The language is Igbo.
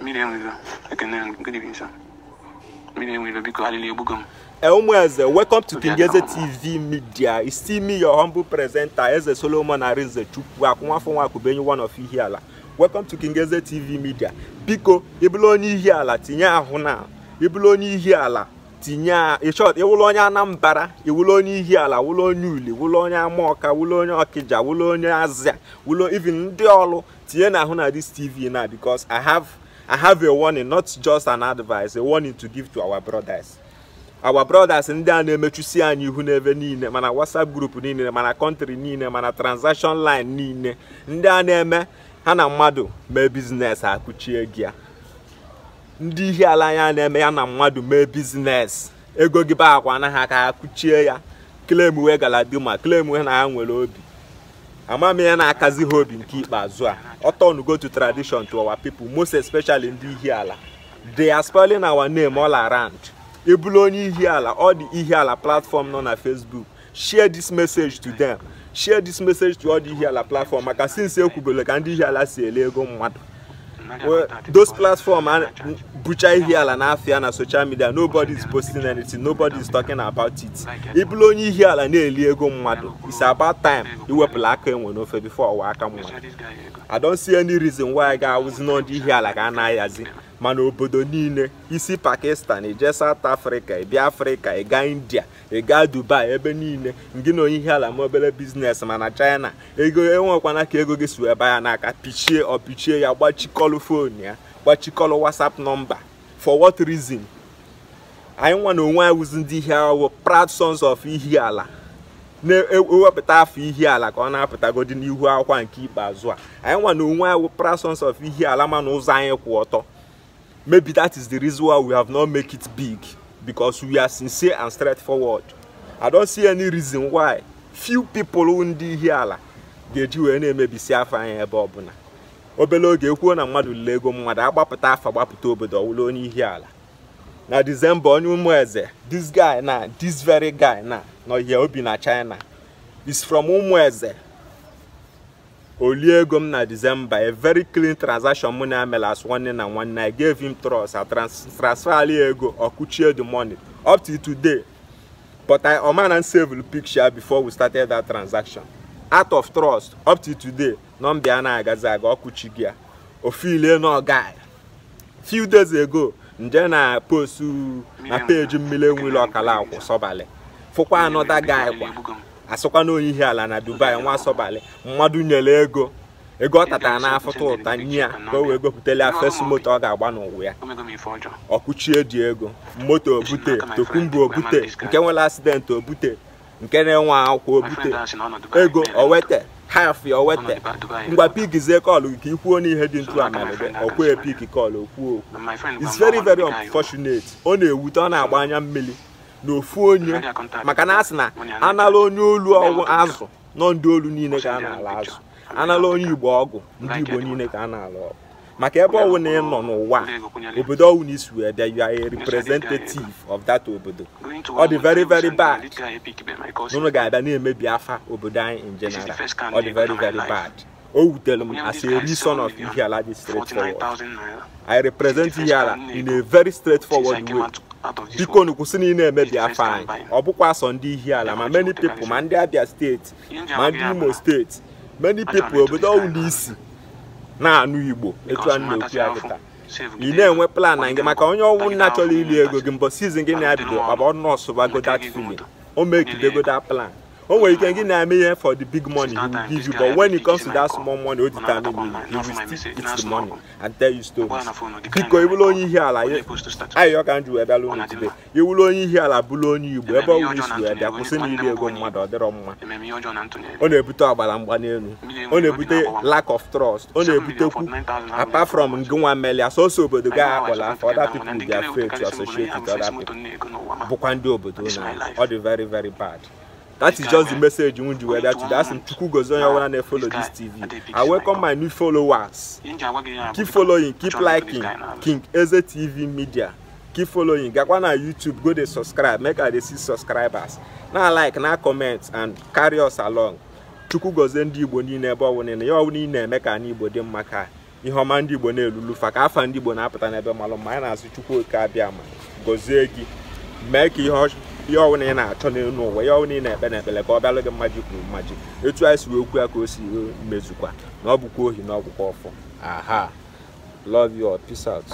mmiri enwere ekene gịnịbisa welcome to TV Media. It's still me, your humble presenter, Eze Solomon Arinze Chukwu, one of Welcome to Kingeze TV Media. Biko, ịbụla onye Ihiala, tinye ahụ onye Ihiala, tinye onye Anambra, ịwụlụ onye Ihiala, wụlụ onye Uli, wụlụ onye Amaọka, wụlụ onye Ọkịja, wụlụ onye Azịa, ndị this TV na because I have I have a warning, not just an advice, a warning to give to our brothers. our brothers ndị a na-emechusi anyị ihu n'ebe niile mana whatsapp group niile mana country niile mana transaction line niile ndị a na-eme ha na mmadụ mee biznes akụchie gị ya ndị ihe ala ya na-eme ya na mmadụ mee biznes ego gị ba akwa anaghị aka kụchie ya klem wee galadima klem wee na ha nwere obi ama ya na-akazi ha obi nke ikpeazụ a go to tradition to our people most especially ndị ihi ala they are spoiling our name all around ebulu onye ihi ala all the ihi ala platform nọ na facebook share this message to them share this message to all the ihi ala platform maka since ekwubele ka ndị ihi ala si ele ego mmadụ those platforms bucha ihe ala n'afịa na social media nobody is posting anything nobody is talking about it ịbụla onye ihe ala na-eli ego mmadụ it's about time iwepụla aka enwe n'ofe before ọwa aka mmadụ i don't see any reason why ga-awụzi n'ọdị ihe ala ga na-ayazi mana obodo niile isi pakistan ije south africa ibia africa ịga india ị gaa dubai ebe niile ngị na onye ihe ala ma obere biznes mana china ego enwekwana ka ego gị si wee ya n'aka pichie ọ pichie ya gbachikọlụ fon ya gbachikọlụ whatsapp nọmba for what reason anyị nwa na onwe anyị ndị ihe awụ proud sons of ihi ala na-ewepụta e afọ ihi ala ka ọ na-apụtagodi n'ihu akwa nke ikpeazụ a anyị nwa na onwe anyị wụ sons of ihi ala mana ụzọ anyị kwụ ọtọ maybe that is the reason why we have not make it big. because we are sincere and straightforward. I don't see any reason why few people who ndị ihe ala ga-eji wee na-emebisi afa anya ebe ọbụla obere oge ekwuo na mmadụ lele ego mmadụ agbapụta afa agbapụta obodo ọwụla onye ihe ala na December onye ụmụ eze this guy na this very guy na nọ ihe obi na China is from ụmụ eze olie ego m na December a very clean transaction mụ na emela as nwanne na nwanne I gave him trust and transfer ego ọkụchie the money up to today but I omana save picture before we started that transaction out of trust up to today nọmba na-agazi aga ọkụchi gị ya ofile a few days ago nje na postu na peji mmiri enwere ọkala akwụ sọbalị fụkwa anọda guy kwa asụkwa ihe ala na dubai nwa asọbali mmadụ nyere ego ego ọ tatara n'afụta ụta nye ya ka o wee gopụtala ya fes moto ọ ga-agba n'ụwa ya ọkụchie dị ego moto obute tokumbu obute nke nwere asidenti obute nke na-enwe akwụkwọ obute ego owete haf owete ngwa pigizie kọlụ ka ikwuo n'ihe dị ntu amalebe ọkwụ epik kọlụ okwuo okwu it's very very unfortunate ọ na-ewute ọ na-agba anya mmiri n'ofu onye maka na asị sị na anala onye olu ọgwụ azụ nọ ndị olu niile ka a na-ala azụ anala onye igbo ọgwụ ndị igbo niile ka a na-ala ọgwụ maka ebe ọwụ na ị nọ n'ụwa obodo ọwụ na isi wee bịa you a representative of that obodo ọ dị very very bad n'ụlọ ga-abịa na-emebi afa obodo anyị in general ọ dị very very bad o wutere m as a reason of Ihiala dị straightforward I represent Ihiala in a very straightforward way biko na ị na emebi afọ anyị ọ bụkwa sọ ndị ihi ala ma many pipo ma ndị abịa steeti ma ndị imo steeti many pipo obodo ọwụla isi na-anụ igbo etu a na-ekwu ya ị na-enwe plan na gị maka onye ọnwụ nna chọrọ iri ego gị mbọ sizin gị na-abido ọ bụ nọọsụ bago that o plan One oh, way you can give Nehemiah for the big money, he will give you. But when it comes to that small money, what determine you, he will still eat the money and tell you stories. Because you will only hear like, I you can do ebe alone today. You will only hear like bulu only you, ebe wish you ebe akwụsị na ile ego mmadụ ọdịrọ mma. Ọ na-ebute ọgbara mgba n'elu. Ọ na-ebute lack of trust. Ọ na-ebutekwu apart from ngịnwa mmeli asọsọ obodo gaa akpọla for other people their faith to associate with other people. Bụkwa ndị obodo ọ dị very very bad. That is just the message you want to weather today. That's in Chuku Gozonya when I follow this TV. I welcome my new followers. Keep following, keep liking. King Eze TV Media. Keep following. Gakwa na YouTube, go dey subscribe. Make I dey see subscribers. Now like, now comment and carry us along. Chuku gozie ndị Igbo niile ebe ọwụ niile. Ya ọwụ niile eme ka anyị Igbo dị mma ka ihe ọma ndị Igbo na-elulu fa ka afa ndị Igbo na-apụta n'ebe malụ mma anyị na-asụ Chukwu oke abịa ma gozie gị mee ka ihe ọchụ ihe ọwụna ị na-achọ n'elu ụwa ihe ọwụna ị na-ekpe na ka ọ bịalụ gị mmaji kwuru mmaji etu anyị si wee okwu ya ka o si mezukwa na ọ bụkwa ohi na ọgwụkwa ọfọ aha love you peace out